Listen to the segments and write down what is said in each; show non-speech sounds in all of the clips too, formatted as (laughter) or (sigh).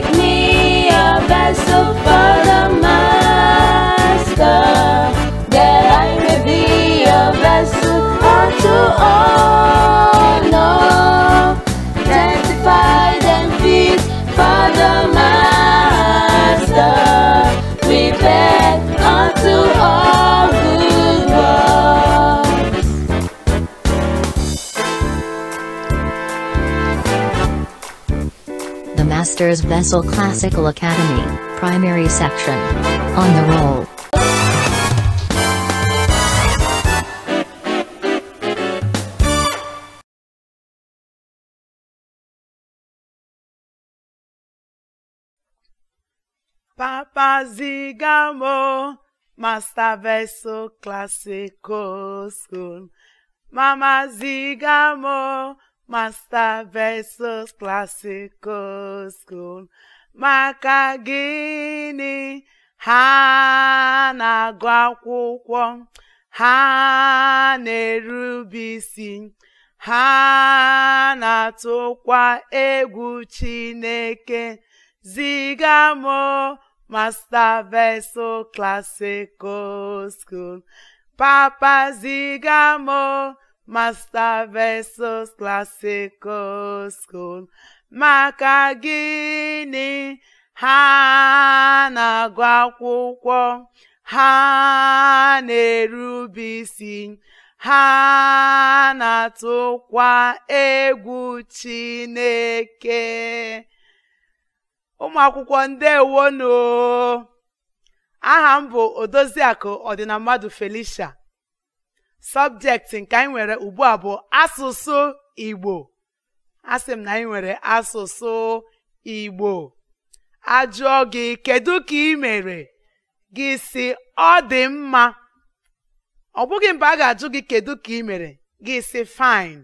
make me a vessel. Masters Vessel Classical Academy, Primary Section. On the roll. Papa Zigamo, Master Vessel Classical School. Mama Zigamo, Master versus Classical School maka gịnị ha na-agụ akwụkwọ ha na-erube isi ha na-atụkwa egwu Chineke ziga m Master versus Classical School papa ziga m Masta versus classical school maka gịnị ha na-agụ akwụkwọ ha na-erube isi ha na-atụkwa egwu Chineke ụmụ akwụkwọ ndewonu aha m bụ Odoziakụ Ọdịnammadụ Felicia sọbjekti nke anyị nwere ugbu a bụ asụsụ Igbo asị m na anyị nwere asụsụ Igbo ajụọ gị kedu ka ị mere gị si ọ dị mma ọ bụghị mba a ga-ajụ gị kedu ka ị mere gị si fine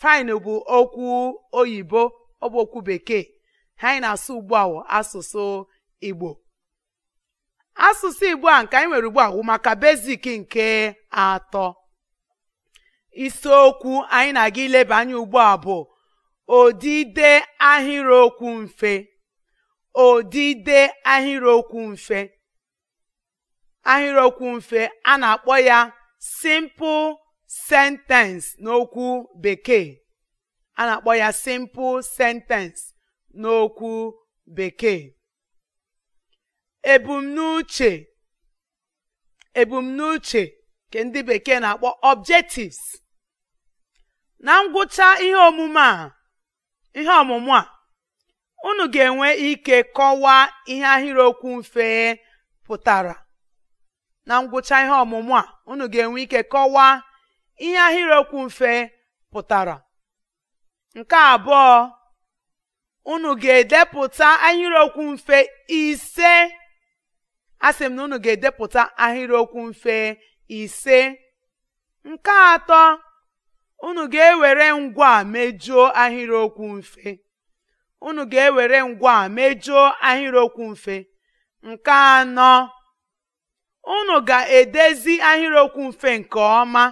fine bụ okwu oyibo ọ bụ okwu bekee ha na-asụ ugbu a asụsụ Igbo asụsụ Igbo a nke anyị nwere ugbu a wụ maka basic nke atọ isiokwu anyị na-aga ileba anya ugbu a bụ odide ahịrịokwu mfe odide ahịrịokwu mfe ahịrịokwu mfe a na-akpọ ya simple sentence n'okwu bekee a na-akpọ ya simple sentence n'okwu bekee ebumnuche ebumnuche nke ndị bekee na-akpọ objectives na ngwụcha ihe omume a ihe ọmụmụ a unu ga-enwe ike kọwaa ihe ahịrịokwu mfe pụtara ọmụmụ a unu ga-enwe ike kọwaa ihe ahịrịokwu mfe pụtara nke abụọ ụnụ ga-edepụta ahịrịokwu mfe ise asị m na unu ga-edepụta ahịrịokwu mfe ise nke atọ unu ga-ewere ngwa a mejuo ahịrịokwu mfe unu ga-ewere ngwa ahịrịokwu mfe nke anọ unu ga-edezi ahịrịokwu mfe nke ọma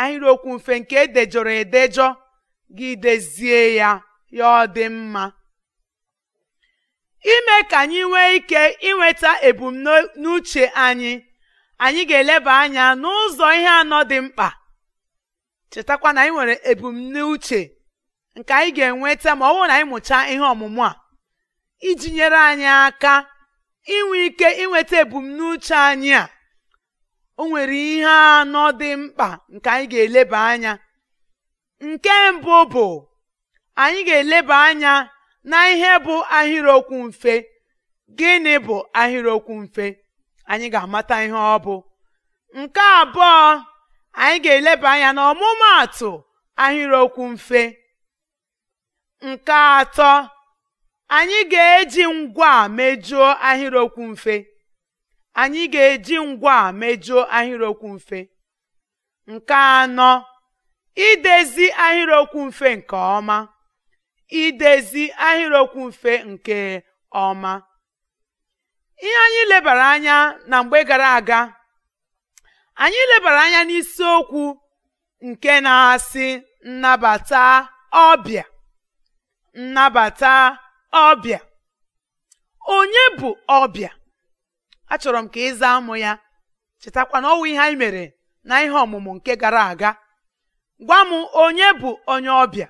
ahịrịokwu mfe nke edejọrọ edejọ gị dezie ya ya ọ dị mma ime ka anyị nwee ike inweta ebumnuche anyị anyị ga-eleba anya n'ụzọ ihe anọ dị mkpa chetakwa na anyị nwere ebumnuche nke anyị ga-enweta ma ọ bụrụ na anyị mụchaa ihe ọmụmụ a iji nyere anyị aka inwe ike inweta ebumnuche anyị a o nwere ihe anọ dị mkpa nke anyị ga-eleba anya nke mbụ bụ anyị ga-eleba anya na ihe bụ ahịrịokwu mfe gịnị bụ ahịrịokwu mfe anyị ga-amata ihe ọ bụ nke abụọ anyị ga-eleba anya na ọmụmaatụ ahịrịokwu mfe nke atọ anyị ga-eji ngwa mejuo ahịrịokwu mfe anyị ga-eji ngwa mejuo ahịrịokwu mfe nke anọ idezi ahịrịokwu mfe nke ọma idezi ahịrịokwu mfe nke ọma ihe anyị lebara anya na mgbe gara aga anyị lebara anya n'isiokwu nke na-asị nnabata ọbịa nnabata ọbịa onye bụ ọbịa achọrọ m ka ịza amụ ya chetakwa na ọnwụ ihe anyị mere na ihe ọmụmụ nke gara aga gwa m onye bụ onye ọbịa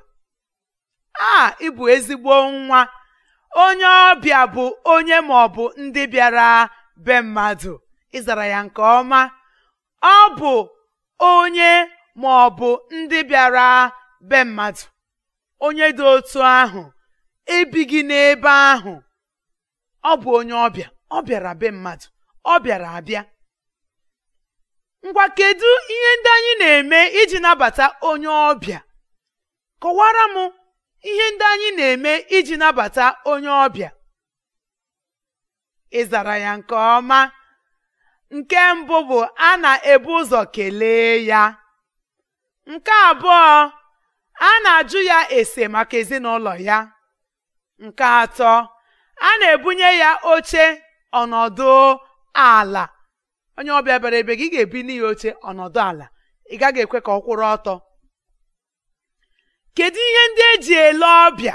a ịbụ ezigbo nwa onye ọbịa bụ onye ma ọ bụ ndị bịara be mmadụ ịzara ya nke ọma ọ bụ onye ma ọ bụ ndị bịara be mmadụ onye dị otu ahụ ebighị n'ebe ahụ ọ bụ onye ọbịa ọ bịara be mmadụ ọ bịara abịa ngwa kedu ihe ndị anyị na-eme iji nabata onye ọbịa kọwara m ihe ndị anyị na-eme iji nabata onye ọbịa ị zara ya nke ọma nke mbụ bụ a na-ebu ụzọ kelee ya nke abụọ a na-ajụ ya ese maka ezinụlọ ya nke atọ a na-ebunye ya oche ọnọdụ ala onye ọbịa bịara ebe gị ga ebi ya oche ọnọdụ ala ị gaghị ekwe ka ọ kwụrụ ọtọ kedu ihe ndị eji ele ọbịa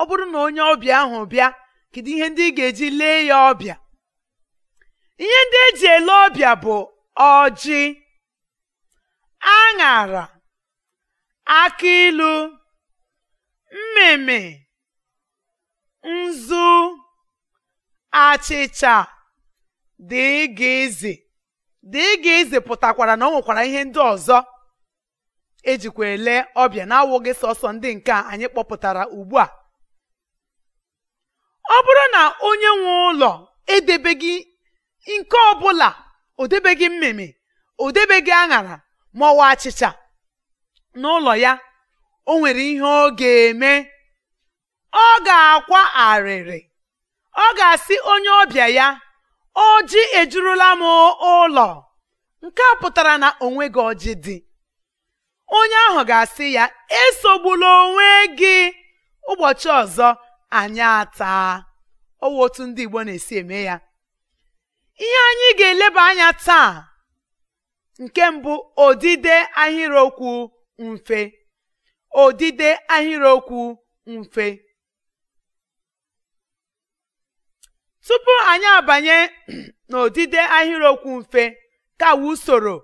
ọ bụrụ na onye ọbịa ahụ bịa kedu ihe ndị ị ga-eji lee ya ọbịa ihe ndị eji ele ọbịa bụ ọjị aṅara aki ilu mmịmị nzu achịcha dịgizi dịgizi pụtakwara na ọ nwekwara ihe ndị ọzọ ejikwa ele ọbịa na-awụghị sọsọ ndị nke anyị kpọpụtara ugbu a ọ bụrụ na onye nwe ụlọ edebeghị nke ọbụla o mmemme o debeghị aṅara ma achịcha n'ụlọ ya o nwere ihe ọ ga-eme ọ ga-akwa arịrị ọ ga-asị onye ọbịa ya ọjị ejurula m ụlọ nke a pụtara na onwe gị ọjị dị onye ahụ ga-asị ya esogbula onwe gị ụbọchị ọzọ anyị ataa ọwa otu ndị Igbo na-esi eme ya ihe anyị ga-eleba anya taa nke mbụ odide ahịrịokwu mfe odide ahịrịokwu mfe tupu anyị abanye (clears throat) n'odide ahịrịokwu mfe ka usoro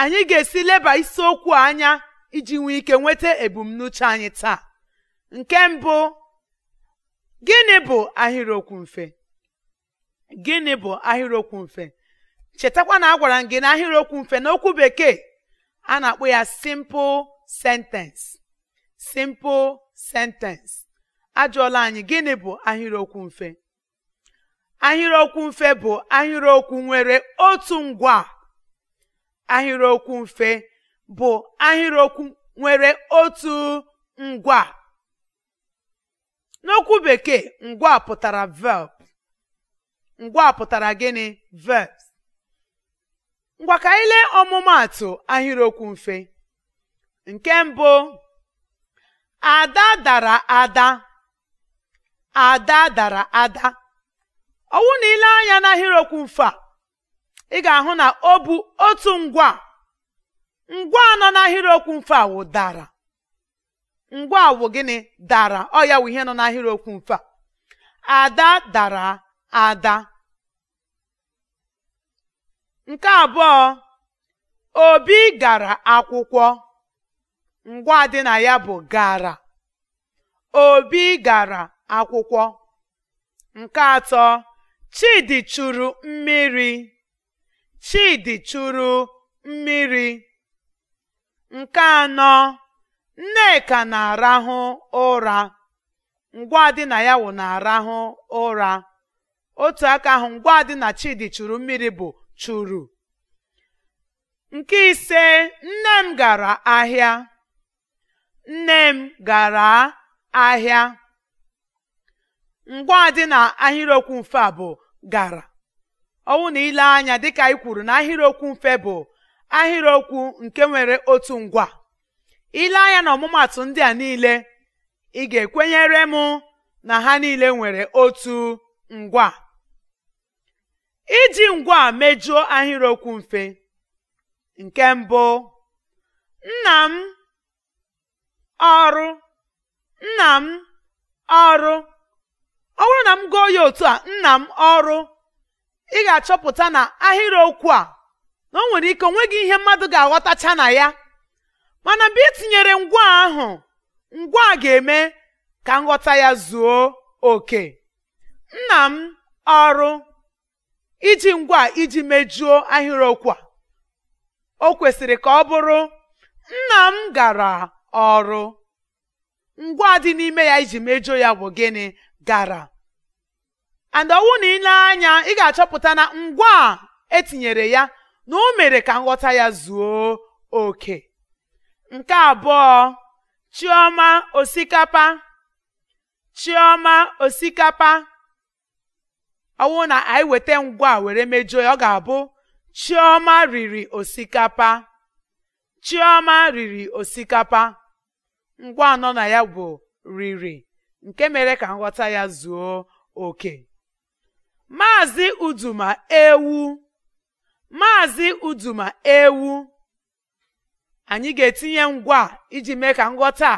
anyị ga-esi leba isiokwu anya iji nwee ike nweta ebumnuche anyị taa nke mbụ gịnị bụ ahịrịokwu mfe gịnị bụ ahịrịokwu mfe chetakwa na a gwara m gị na ahịrịokwu mfe n'okwu bekee a na akpụ ya simple sentence simple sentence ajụọla anyị gịnị bụ ahịrịokwu mfe ahịrịokwu mfe bụ ahịrịokwu nwere otu ngwa ahịrịokwu mfe bụ ahịrịokwu nwere otu ngwa n'okwu bekee ngwa pụtara verb ngwa pụtara gịnị verbs ngwa ka anyị lee ọmụmaatụ ahịrịokwu mfe nke mbụ ada dara ada ada dara ada ọwụ na ile anya n'ahịrịokwu mfe a ị ga-ahụ na ọ bụ otu ngwa ngwa nọ n'ahịrịokwu mfe a wụ dara ngwa wụ gịnị dara ọ ya wụ ihe nọ n'ahịrịokwu mfe a ada dara ada nke abụọ obi gara akwụkwọ ngwa dị na ya bụ gara obi gara akwụkwọ nke atọ chidi churu mmiri chidi chụrụ mmiri nke anọ nneka na-arahụ ụra ngwa dị na ya wụ na-arahụ ụra otu aka ahụ ngwa dị na Chidi churu mmiri bụ churu nke ise nne m gara ahịa nne m gara ahịa ngwa dị na ahịrịokwu mfe a bụ gara ọwụ na ile anya dịka anyị kwuru na ahịrịokwu mfe bụ ahịrịokwu nke nwere otu ngwa ile anya na ọmụmatụ ndị a niile ị ga-ekwenyere m na ha niile nwere otu ngwa iji ngwa mejuo ahịrịokwu mfe nke mbụ nna m ọrụ nna m ọrụ ọ bụrụ na m gụọ ya otu a nna m ọrụ ị ga-achọpụta na ahịrịokwu a na o nwere ike onweghị ihe mmadụ ga-aghọtacha na ya mana mgbe ị tinyere ngwa ahụ ngwa ga-eme ka nghọta ya zuo oke nna m ọrụ iji ngwa iji mejuo ahịrịokwu a o kwesịrị ka ọ bụrụ nna m gara ọrụ ngwa dị n'ime ya iji mejuo ya bụ gịnị gara and ọwụ na ile anya ị ga-achọpụta na ngwa etinyere ya na o mere ka nghọta ya zuo oke nke abụọ chioma osikapa chioma osikapa ọnwụ na anyị weta ngwa a were mejuo ya ọ ga-abụ chioma riri osikapa chioma riri osikapa ngwa anọ na ya bụ riri nke mere ka nghọta ya zuo oke maazị uduma ewu ewu anyị ga-etinye ngwa iji mee ka nghọta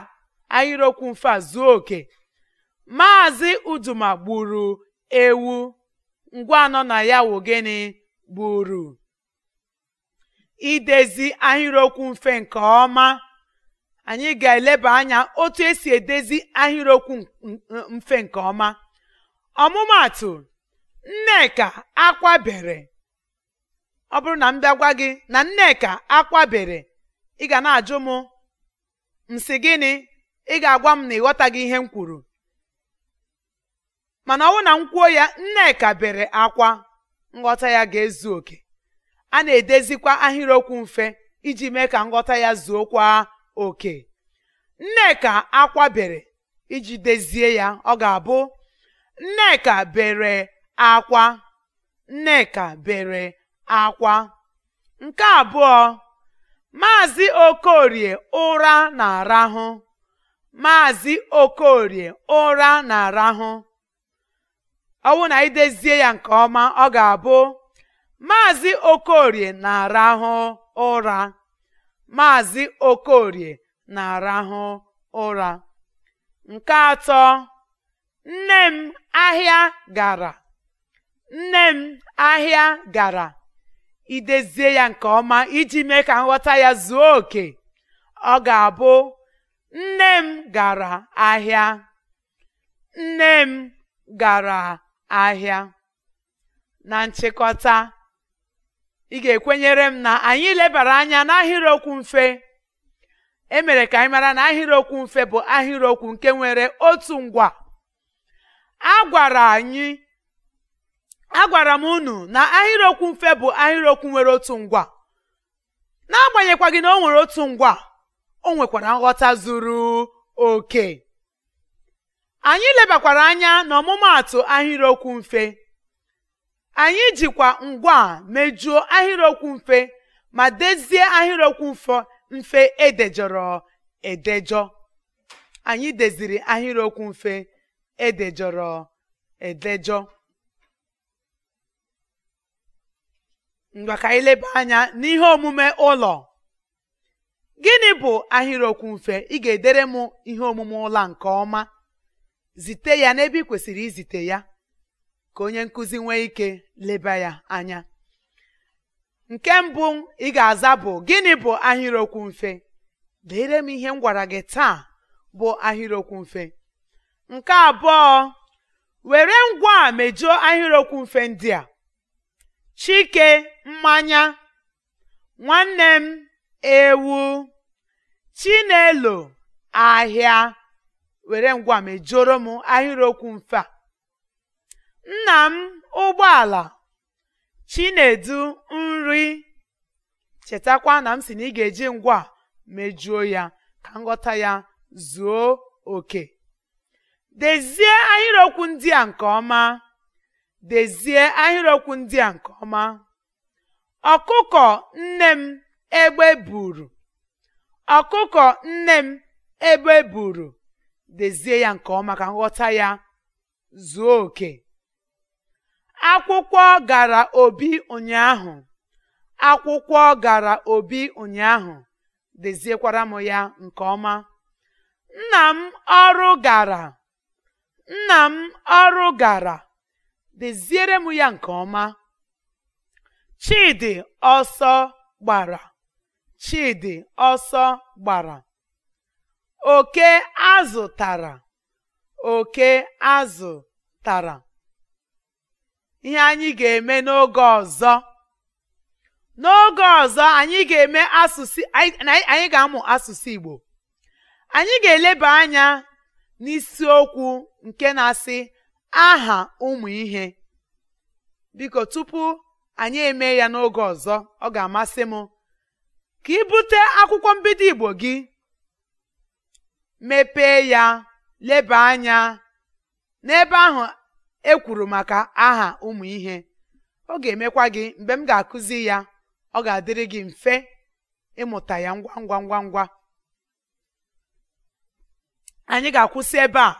ahịrịokwu mfe a zuo oke maazị uduma gburu ewu ngwa anọ na ya wụ gịnị gburu idezi ahịrịokwu mfe nke ọma anyị ga-eleba anya otu esi edezi ahịrịokwu mfe nke ọma ọmụmaatụ nneka akwabere ọ bụrụ na m bịagwa gị na nneka akwabere ị ga na-ajụ m m gịnị ị ga-agwa m na ịghọtaghị ihe m kwuru mana ọwụ na nkwuo ya nneka bere akwa nghọta ya ga-ezu oke a na-edezikwa ahịrịokwu mfe iji mee ka nghọta ya zuokwa oke nneka akwa bere iji dezie ya ọ ga-abụ nneka bere akwa nneka bere akwa nke abụọ maazị okorie ụra na-arahụ maazị okorie ụra na-arahụ ọ bụ na idezie ya nke ọma ọ ga-abụ maazị okorie na-arahụ ụra maazị okorie na-arahụ ụra nke atọ nne m ahịa gara nne m ahịa gara idezie ya nke ọma iji mee ka nghọta ya zuo oke ọ ga-abụ nne m gara ahịa nne m gara ahịa na nchịkọta ị ga-ekwenyere m na anyị lebara anya n'ahịrịokwu mfe emere ka anyị mara na ahịrịokwu mfe bụ ahịrịokwu nke nwere otu ngwa a gwara anyị agwara m unu na ahịrịokwu mfe bụ ahịrịokwu nwere otu ngwa n'agbanyekwaghị na o nwere otu ngwa o nwekwara nghọta zuru oke anyị lebakwara anya na ọmụmaatụ ahịrịokwu mfe anyị jikwa ngwa mejuo ahịrịokwu mfe ma dezie ahịrịokwu mfe mfe edejọrọ edejọ anyị deziri ahịrịokwu mfe edejọrọ edejọ ngwa ka anyị leba anya n'ihe omume ụlọ gịnị bụ ahịrịokwu mfe ị ga-edere m ihe omume ụlọ nke ọma zite ya n'ebe ị kwesịrị izite ya ka onye nkụzi nwee ike leba ya anya nke mbụ ị ga-aza bụ gịnị bụ ahịrịokwu mfe lere m ihe m gwara gị taa bụ ahịrịokwu mfe nke abụọ were ngwa a ahịrịokwu mfe ndị a chike mmanya nwanne m ewu chinelo ahịa were ngwa mejoro m ahịrịokwu mfe a nna m ụgbọala chinedu nri chetakwa na m si na ị ga-eji ngwa mejuo ya ka nghọta ya zuo oke dezie ahịrịokwu ndị a nke ọma dezie ọkụkọ nne m egbe buru ọkụkọ nne m egbe buru dezie ya nke ọma ka nghọta ya zuo oke akwụkwọ gara obi ụnyaahụ akwụkwọ gara obi ụnyaahụ deziekwara m ya nke ọma nna m ọrụ gara nna m ọrụ gara deziere m ya nke ọma Chidi ọsọ gbara Chidi ọsọ gbara oke azụ tara oke azụ tara ihe anyị ga-eme n'oge ọzọ n'oge ọzọ anyị ga-eme asụsụ anyị ga-amụ asụsụ Igbo anyị ga-eleba anya n'isiokwu nke na-asị aha ụmụ ihe biko tupu anyị eme ya n'oge ọzọ ọ ga-amasị m ka ị bute akwụkwọ mbido Igbo gị mepee ya leba anya n'ebe ahụ e kwuru maka aha ụmụ ihe ọ ga-emekwa gị mgbe m ga-akụzi ya ọ ga-adịrị gị mfe ịmụta ya ngwa ngwa ngwa ngwa anyị ga-akwụsị ebe a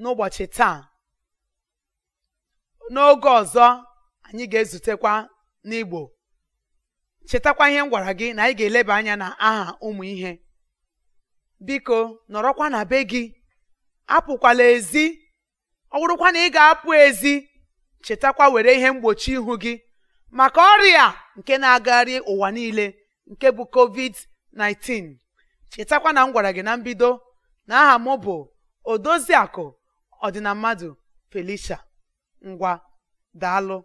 n'ụbọchị taa n'oge ọzọ anyị ga-ezutekwa n'Igbo chetakwa ihe m gwara gị na anyị ga-eleba anya na aha ụmụ ihe biko nọrọkwa na be gị apụkwala ezi ọ na ị ga-apụ ezi chetakwa were ihe mgbochi ihu gị maka ọrịa nke na-agagharị ụwa niile nke bụ covid-19 chetakwa na m gwara gị na mbido na aha m bụ odoziakụ ọdịna mmadụ felicia ngwa daalụ